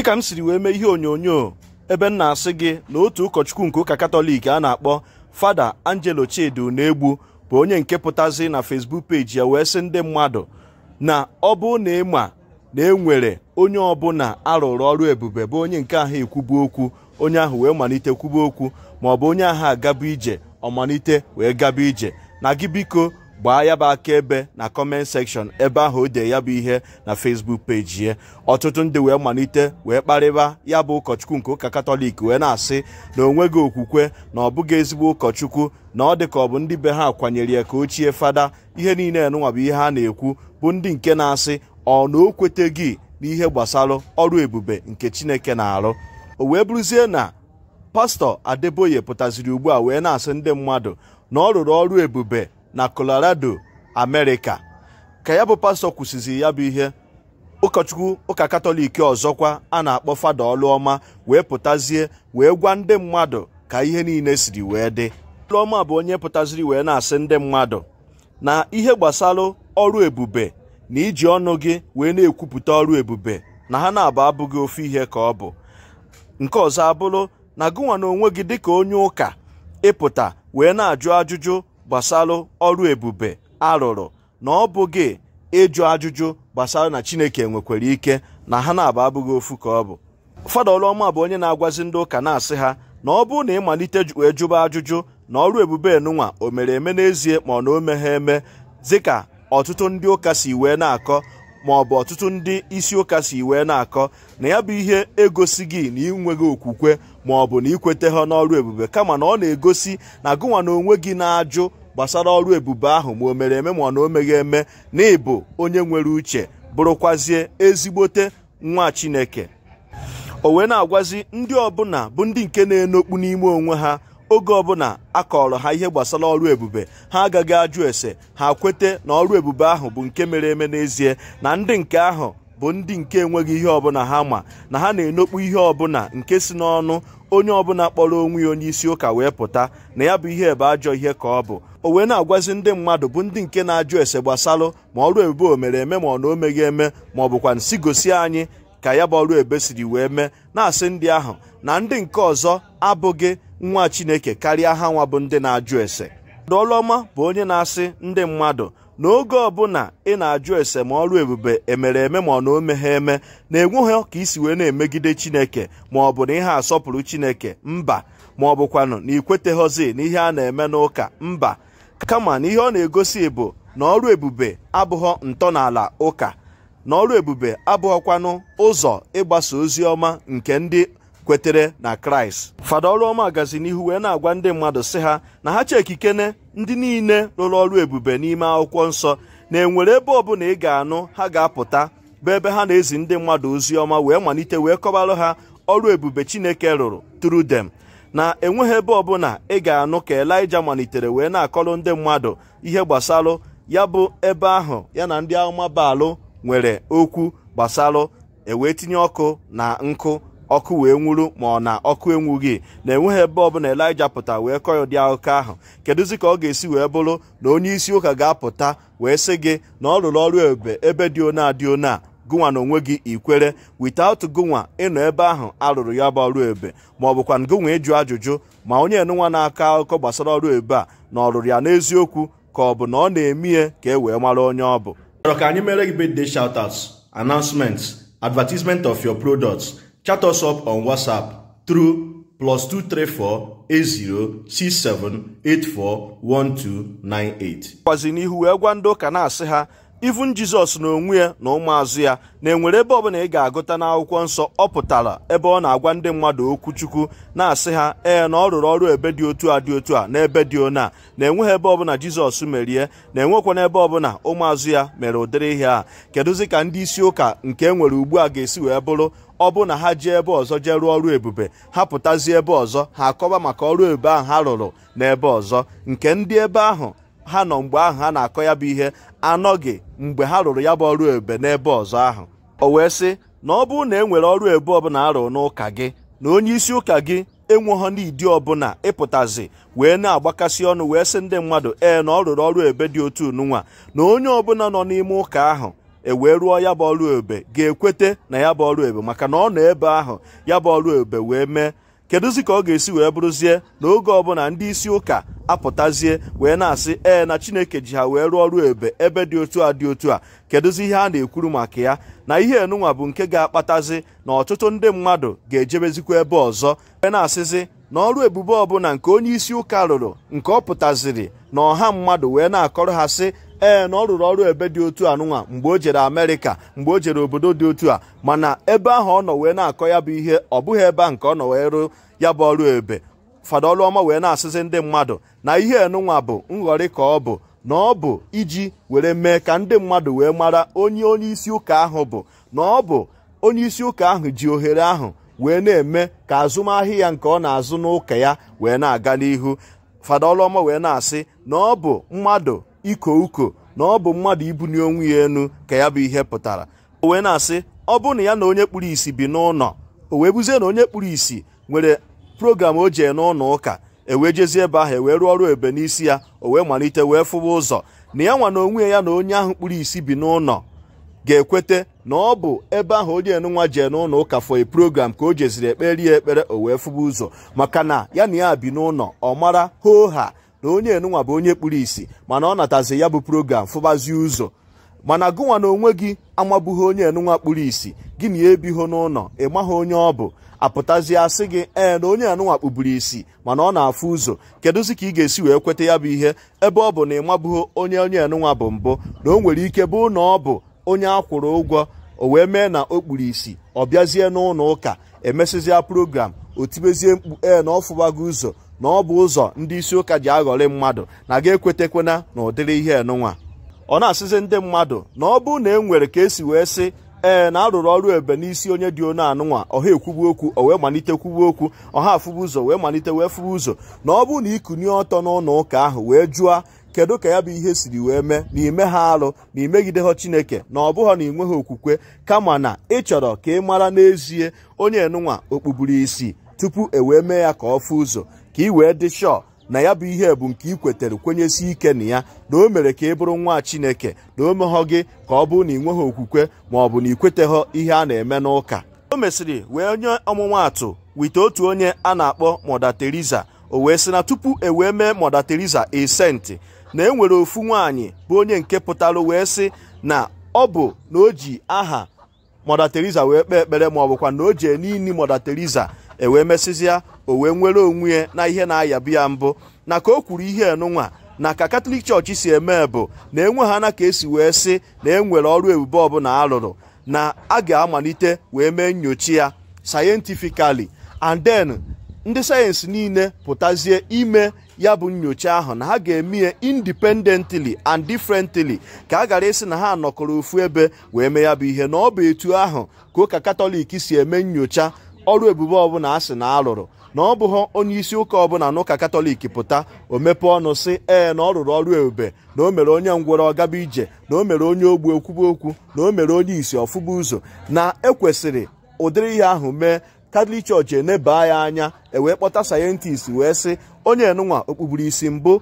dịka m siri wee mee ihe onyonyo ebe m na-asị gị na otu ụkọchukwu nke ụka katọlik a na-akpọ fada angelo chidi na-egbu bụ onye nke pụtazi na fesbuk peji ya wee sị ndị mmadụ na ọ bụ na ịma na enwere onye ọbụla arụrụ ọrụ ebube bụ onye nke ahụ ekwubu okwu onye ahụ wee malite kwubu okwu ma ọ bụ onye ahụ agaba ije ọmalite wee gaba ije na gị biko gbaa ya bụ akaebe na kọment sekshọn ebe ahụ o dee ya bụ ihe na fesbuk peji ya ọtụtụ ndị wee malite wee kparịba ya bụ ụkọchukwu nke ụka katọlik wee na-asị na onwe gị okwukwe na ọ bụghị ezigbo ụkọchukwu na ọ dị ka ọ bụ ndị be ha kwanyere ya ka ochie fada ihe niile nụnwabụ ihe a na-ekwu bụ ndị nke na-asị ọ na o kweteghị n'ihe gbasara ọrụ ebube nke chineke na-arụ o wee bụrụzie na pastọ adeboye pụtaziri ugbu a wee na-asị ndị mmadụ na ọ rụrụ ọrụ ebube na colorado amerịka ka ya bụ pastọ kwụsịzi ya bụ ihe ụkọchukwu ụka katọlik ọzọkwa a na-akpọ fada ọlụọma wee pụtazie wee gwa ndị mmadụ ka ihe niile siri wee dị ọlụọma bụ onye pụtaziri wee na-asị ndị mmadụ na ihe gbasara ọrụ ebube na iji ọnụ gị wee na-ekwupụta ọrụ ebube na ha na-abụ abụghị ofe ihe ka ọ bụ nke ọzọ abụrụ na gụnwa na onwe gị dịka onye ụka ịpụta wee na-ajụ ajụjụ gbasara ọrụ ebube arụrụ na ọ bụghị ịjụ ajụjụ gbasara na chineke nwekwara ike na ha na-aba abụghị ofu ka ọ bụ fada ọlụọma bụ onye na-agwazi ndị ụka na-asị ha na ọ bụrụ na ịmalite ejụba wee jụba ajụjụ na ọrụ ebube enunwa o mere eme n'ezie ma ọ na o meghe eme dịka ọtụtụ ndị ụka si wee na-akọ ma ọ bụ ọtụtụ ndị isi ụka si wee na-akọ na ya bụ ihe egosi gị na ị okwukwe ma ọ bụ na ikwete ha n'ọrụ ebube kama na ọ na-egosi na gụnwa na onwe gị na-ajụ gbasara ọrụ ebube ahụ ma o mere eme ma ọ na o eme na ịbụ onye nwere uche bụrụkwazie ezigbote nwa chineke o wee na-agwazi ndị ọbụla bụ ndị nke na-enokpu n'ime onwe ha oge ọbụla a kọrọ ha ihe gbasara ọrụ ebube ha agaghị ajụ ese ha kwete na ọrụ ebube ahụ bụ nke mere eme n'ezie na ndị nke ahụ bụ ndị nke enweghị ihe ọbụla ha ma na ha na-enokpu ihe ọbụla nke si n'ọnụ onye ọbụla kpọrọ onwe ya onye isi ụka wee pụta na ya bụ ihe bụ ajọ ihe ka ọ bụ o wee na-agwazi ndị mmadụ bụ ndị nke na-ajụ ese gbasalụ ma ọrụ ebube o mere eme ma ọ na o meghị eme ma ọ bụkwa nsi gosi anyị ka ya bụ ọrụ ebe siri wee mee na-asị ndị ahụ na ndị nke ọzọ abụghị nwa Chineke karịa ha nwa bụ ndị na-ajụ ese ọdụ ọlụọma bụ onye na-asị ndị mmadụ n'oge ọbụla ị na-ajụ ese ma ebube emere eme ma ọ na ome ha eme na-enweghị ka isi wee na-emegide chineke ma ọ bụ na ihe asọpụrụ chineke mba ma ọ bụkwanụ na ikweteghọzi na ihe a na-eme n'ụka mba kama na ihe ọ na-egosi bụ na ọrụ ebube abụghọ ntọala ụka na ọrụ ebube abụghọkwanụ ụzọ ịgbasa ozi ọma nke ndị kwetere na kraịst fada ọlụọma gazi n'ihu wee na-agwa ndị mmadụ sị ha na ha chekikene ndị niile rụrụ ọrụ ebube n'ime akwụkwọ nsọ na enwere ebe bụla ị ga-anụ ha ga-apụta bụ ebe ha na-ezi ndị mmadụ ozi ọma wee malite wee kọbarụ ha ọrụ ebube chineke rụrụ tru dem na enweghị ebe bụla ị ga-anụ ka elija malitere wee na-akọrọ ndị mmadụ ihe gbasalụ ya bụ ebe ahụ ya na ndị baalụ nwere okwu gbasalụ ewee tinye ọkụ na nkụ ọkụ wee nwuru ma ọ na ọkụ enwughị na enweghị ebe ọbụla elija pụta wee kọ dị ụdị akụkọ ahụ kedụzi ka ọ ga-esi wee bụrụ na onye isi ụka ga-apụta wee sị gị na ọ rụrụ ọrụ ebe ebe dị one a dị one gụnwa na onwe gị ikwere witaut gụnwa ịnọ ebe ahụ arụrụ ya bụ ọrụ ebe ma ọ bụkwa gụnwa ịjụ e ajụjụ ma onye enụnwa na-akọ akụkọ gbasara ọrụ ebe a na ọ rụrụ ya n'eziokwu ka ọ bụ na ọ na-emie ka e wee mara onye ọ bụ ka anyị mere gị birthday advertisement of your products chat us up on WhatsApp through plus 234 80 1298 n'ihu wee gwa ndị ụka na-asị ha ivun jizọs na onwe ya na ụmụazụ ya na-enwere ebe ọbụla ị ga-agụta n'akwụkwọ nsọ ọ pụtara ebe ọ na-agwa ndị mmadụ okwu chukwu na-asị ha ee na ọ rụrụ ọrụ ebe dị otu a dị otu a n'ebe dị ona a na-enweghị ebe ọbụla jizọs merie na na ebe ọbụla ụmụazụ ya mere ụdịrị ihe a kedụzi ka ndị isi ụka nke e nwere ugbu a ga-esi wee bụrụ ọ bụ na ha jee ebe ọzọ jee rụọ ọrụ ebube ha pụtazie ebe ọzọ ha akọba maka ọrụ ebube ahụ ha rụrụ n'ebe ọzọ nke ndị ebe ahụ ha nọ mgbe ahụ ha na-akọ ya bụ ihe anọghị mgbe ha rụrụ ya bụ ọrụ ebe n'ebe ọzọ ahụ o wee sị na ọ bụrụ na e nwere ọrụ ebe ọbụla arụ n'ụka gị na onye isi ụka gị enweghọ n'idi ọbụla ịpụtazi wee na-agbakasị ọnụ wee sị ndị mmadụ ee na ọ rụrụ ọrụ ebe dị otu nunwa na onye ọbụla nọ n'ime ụka ahụ e wee rụọ ya bụ ọrụ ebe ga-ekwete na ya bụ ọrụ ebe maka na ọ nọ ebe ahụ ya bụ ọrụ ebe wee mee kedụzi ka ọ ga-esi wee bụrụzie na oge ọbụla ndị isi ụka apụtazie wee na-asị ee na chineke ji ha wee rụọ ọrụ ebe ebe dị otu a dị otu a kedụzi ihe a na-ekwuru maka ya na ihe enunwa bụ nke ga-akpatazi na ọtụtụ ndị mmadụ ga-ejebezikwa ebe ọzọ wee na-asịzi na ọrụ ebube ọbụla nke onye isi ụka rụrụ nke ọ pụtaziri na ọha mmadụ wee na-akọrọ ha sị ee na ọ rụrụ ọrụ ebe dị otu a nụnwa mgbe o jere amerịka mgbe o jere obodo dị otu a mana ebe ahụ ọ nọ wee na-akọ ya bụ ihe ọ bụghị ebe a nke ọ nọ wee ya bụ ọrụ ebe fada wee na-asịzi ndị mmadụ na ihe enunwa bụ nghọrị ka ọ bụ na ọ bụ iji were mee ka ndị mmadụ wee mara onye onye isi ụka ahụ bụ na ọ bụ onye isi ụka ahụ ji ohere ahụ wee na-eme ka azụmahịa ya nke ọ na-azụ n'ụka ya wee na-aga n'ihu fada wee na-asị na ọ bụ mmadụ iko uko na ọ bụ mmadụ ibuli onwe ya enu ka ya bụ ihe pụtara o wee na-asị ọ bụ na ya na onye kpuru isi bi n'ụlọ o wee buzie na onye kpuru isi nwere program o jee n'ụlọ ụka ewee jezie ebe ahụ ewee rụọ ọrụ ebe n'isi ya o wee malite wee fụwa ụzọ na ya nwa na onwe ya na onye ahụ kpụrụ isi bi n'ụlọ ga-ekwete na ọ bụ ebe ahụ onye enunwa jee n'ụlọ ụka for a program ka o jeziri ekperi ya ekpere o wee fụba ụzọ maka na ya na ya bi n'ụlọ ọ mara hoo ha na onye enunwa bụ onye kpụrụ isi mana ọ natazi ya bụ program fụbazie ụzọ mana gụnwa na onwe gị amabughi onye enunwa kpụrụ isi gị na ya ebighị n'ụlọ ị maghị onye ọ bụ apụtazie asị gị ee na onye anụnwa kpuburu isi mana ọ na-afụ ụzọ kedụzi ka ị ga-esi wee kweta ya bụ ihe ebe ọ bụ na ị onye onye anụnwa bụ mbụ na o nwere ike bụ na ọ bụ onye kwụrụ ụgwọ o wee mee na o kpuru isi ọ bịazie n'ụlọ ụka emesịzịa program o tibezie mkpu ee na ọ fụwago ụzọ na ọ bụ ụzọ ndị isi ụka ji aghọrị mmadụ na ga ekwetekwena na ụdịrị ihe enụnwa ọ na-asịzi ndị mmadụ na ọ bụ na e nwere ka esi wee sị ee na arụrụ ọrụ ebe n'isi onye dị onu anụnwa ọha ekwubu okwu o wee malite kwubu okwu ọha afụbu ụzọ wee malite wee fụbu ụzọ na ọ bụrụ na ịkụnye ọtọ n'ụlọ ụka ahụ wee jụọ kedu ka ya bụ ihe siri wee mee na ime ha arụ na imegide ha chineke na ọ bụghị na inwe ha okwukwe kama na ị chọrọ ka ị mara n'ezie onye enụnwa okpukpuru isi tupu e wee mee ya ka ọ fụ ụzọ ka ị wee dị shọọ na ya bụ ihe bụ nke ị kwetere kwenyesi ike na ya na o mere ka ị bụrụ nwa chineke na o meghọ gị ka ọ bụrụ na ị nweghị okwukwe ma ọ bụ na ị kweteghọ ihe a na-eme n'ụka o mesịrị wee nye ọmụmaatụ wite otu onye a na-akpọ Mọda Teresa o wee sị na tupu e wee mee Mọda Teresa esenti na e nwere ofu nwaanyị bụ onye nke pụtara wee sị na ọ bụ na o ji aha Mọda Teresa wee kpee ekpere ma ọ bụkwa na o ji n'ini Mọda Teresa ewee mesịzịa o wee nwere onwe ya na ihe na-ayabu ya mbụ na ka o kwuru ihe enunwa na ka katọlik chọọchị si eme bụ na enwe ha na ka esi wee sị na enwere ọrụ ebube ọbụla alụrụ na a ga-amalite wee mee nyocha ya sayentifikali and then ndị sayensị niile pụtazie ime ya bụ nyocha ahụ na ha ga-eme ya independently and differently ka a gara ịsị na ha nọkọrọ ofu ebe wee mee ya bụ ihe na ọ bụ etu ahụ ka ụka katọlik si eme nyocha ọrụ ebube ọbụla a sị na alụrụ na ọ bụghị onye isi ụka ọbụla ụka katọlik pụta o mepe ọnụ sị ee na ọ rụrụ ọrụ ebube na o mere onye ngwọrọ ọgaba ije na o mere onye ogbu okwuba okwu na o mere onye isi ọfụba ụzọ na ekwesịrị ụdịrị ihe ahụ mee katọlik chọọchị enebaa ya anya ewee kpọta sayentist wee sị onye enụnwa okpuburu isi mbụ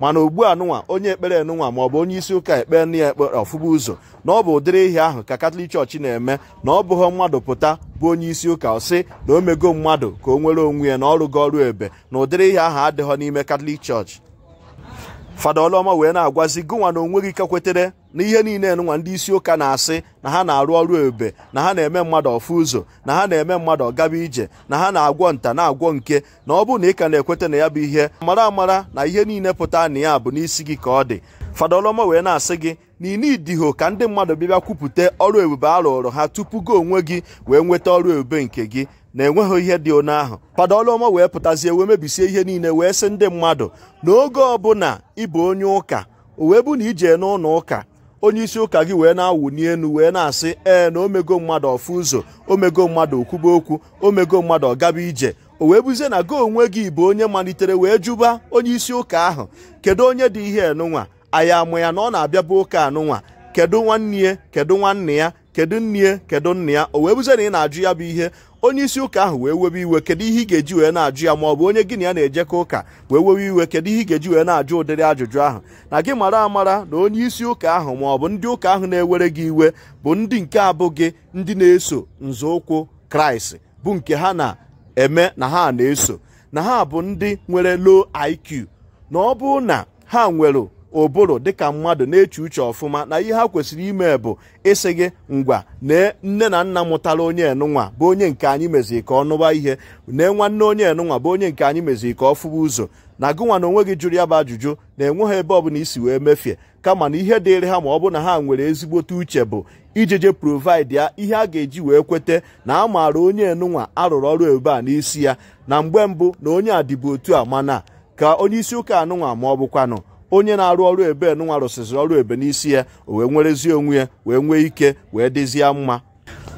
mana ugbu a onye ekpere ma ọ bụ onye isi ụka ekpe nne ya ekpere ọfụma ụzọ na ọ bụ ụdịrị ihe ahụ ka katọlik chọọchị na-eme na ọ bụghị mmadụ pụta bụ onye isi ụka ọsị na o mego mmadụ ka o nwere onwe ya na ọrụ gị ọrụ ebe na ụdịrị ihe ahụ adịghọ n'ime katọlik chọọchị fada ọlụọma wee na-agwazi gụnwa na onweghị ike kwetere na ihe niile nwa ndị isi ụka na-asị na ha na-arụ ọrụ ebe na ha na-eme mmadụ ọfụ ụzọ na ha na-eme mmadụ ọgaba ije na ha na-agwọ nta na-agwọ nke na ọ bụrụ na ị ka na-ekweta na ya bụ ihe mara amara na ihe niile pụta na ya bụ n'isi gị ka ọ dị fada ọlụọma wee na-asị gị na inidiho ka ndị mmadụ bịbịa kwupụta ọrụ ebube a ha tupu gị onwe gị wee nweta ọrụ ebube nke gị na enweghị ihe dị one ahụ padolụọma wee pụtazie wee mebisie ihe niile wee sị ndị mmadụ n'oge ọbụla ịbụ onye ụka o bụ na ije n'ụlọ ụka onye isi ụka gị wee na-awụni elu wee na-asị ee na omego mmadụ ọfụ ụzọ omego mmadụ okwuba okwu omego mmadụ ọgaba ije o wee buzie na gị onwe gị bụ onye malitere wee jụba onye isi ụka ahụ kedu onye dị ihe nụnwa anyị amụ ya na ọ na-abịa bụ ụka anụnwa kedu nwanne ya kedu nwanne ya kedu nne kedu nna ya o wee bụzie na ị na-ajụ ya bụ ihe onye isi ụka ahụ wee webe iwe kedu ihe ị ga-eji wee na-ajụ ya maọbụ bụ onye gị na ya na-ejekọ ụka wee webe iwe kedu ihe ị ga-eji wee na-ajụ ụdịrị ajụjụ ahụ na gị mara amara na onye isi ụka ahụ maọ bụ ndị ụka ahụ na-ewere gị iwe bụ ndị nke abụghị ndị na-eso nzọụkwụ kraịst bụ nke ha na-eme na ha na-eso na ha bụ ndị nwere low IQ na ọ bụ na ha nwere ụbụrụ dịka mmadụ na-eche uche ọfụma na ihe ha kwesịrị ime bụ ịsị gị ngwa nee nne na nna mụtara onye enunwa bụ onye nke anyị mezii ka ọ nụwa ihe nee nwanne onye enunwa bụ onye nke anyị mezi ka ọ fụwa ụzọ na gụnwa na onwe gị jụrụ ya bụ ajụjụ na-enwe ha ebe bụla isi wee mefie kama na ihe dịrị ha ma ọ bụ na ha nwere ezigbote uche bụ ijeje provide ya ihe a ga-eji wee kweta na a maara onye enunwa arụrụ ọrụ ebe a n'isi ya na mgbe mbụ na onye a dịbụ otu a mana ka onye isi ụka anụnwa ma ọ bụkwanụ onye na-arụ ọrụ ebe nwa rụsịsịrị ọrụ ebe n'isi ya o wee nwerezie onwe ya wee nwee ike wee dịzie mma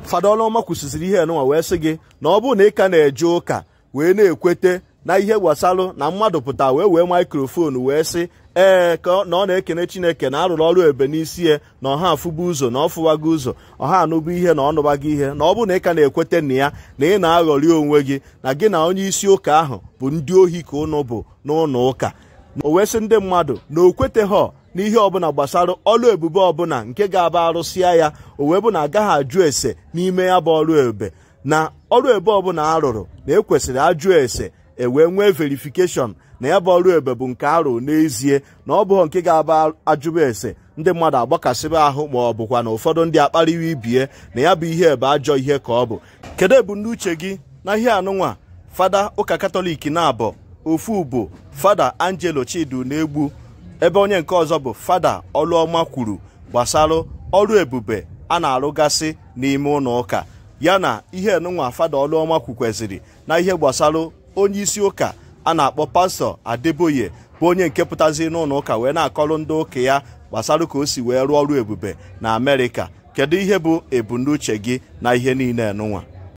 fada ọlụọma kwụsịsịrị ihe nụnwa wee sị gị na ọ bụrụ na ị ka na-eje ụka wee na-ekwete na ihe gwasalụ na mmadụ pụta wee wee maikrofonu wee sị ee ka na ọ na-ekene chineke na arụrụ ọrụ ebe n'isi ya na ọha afụba ụzọ na ọ fụwago ụzọ ọha anụba ihe na ọnụbago ihe na ọ bụ na ị ka na-ekwete na ya na ị na-aghọrị onwe gị na gị na onye isi ụka ahụ bụ ndị ohi ka ụnụ bụ n'ụlọ ụka o wee sị ndị mmadụ na o kweteghọ n'ihe ọbụla gbasara ọlụ ebube ọbụla nke ga-aba arụsịa ya o wee bụ na agaghị ajụ ese n'ime ya bụ ọrụ ebube na ọrụ ebe ọbụla a rụrụ na ekwesịrị ajụ ese e wee nwee verifikeshọn na ya bụ ọrụ ebe bụ nke arụ n'ezie na ọ bụghọ nke ga-aba ajụba ese ndị mmadụ agbakasịba ahụ ma ọ bụkwa na ụfọdụ ndị akpariwa ibie na ya bụ ihe ebe ajọ ihe ka ọ bụ kedu uche gị na ihe anụnwa fada ụka katọlik na-abụ ofu bụ fada angelo chidu na-egbu ebe onye nke ọzọ bụ fada ọlụọma kwuru gbasara ọrụ ebube a na-arụgasị n'ime ụlọ ụka ya na ihe enunwa fada ọlụọma kwukweziri na ihe gbasara onye isi ụka a na-akpọ pastọ adeboye bụ onye nke pụtazi n'ụlọ ụka wee na-akọrọ ndị ụka ya gbasara ka o si wee rụọ ọrụ ebube na amerịka kedu ihe bụ ebumnuche gị na ihe niile enunwa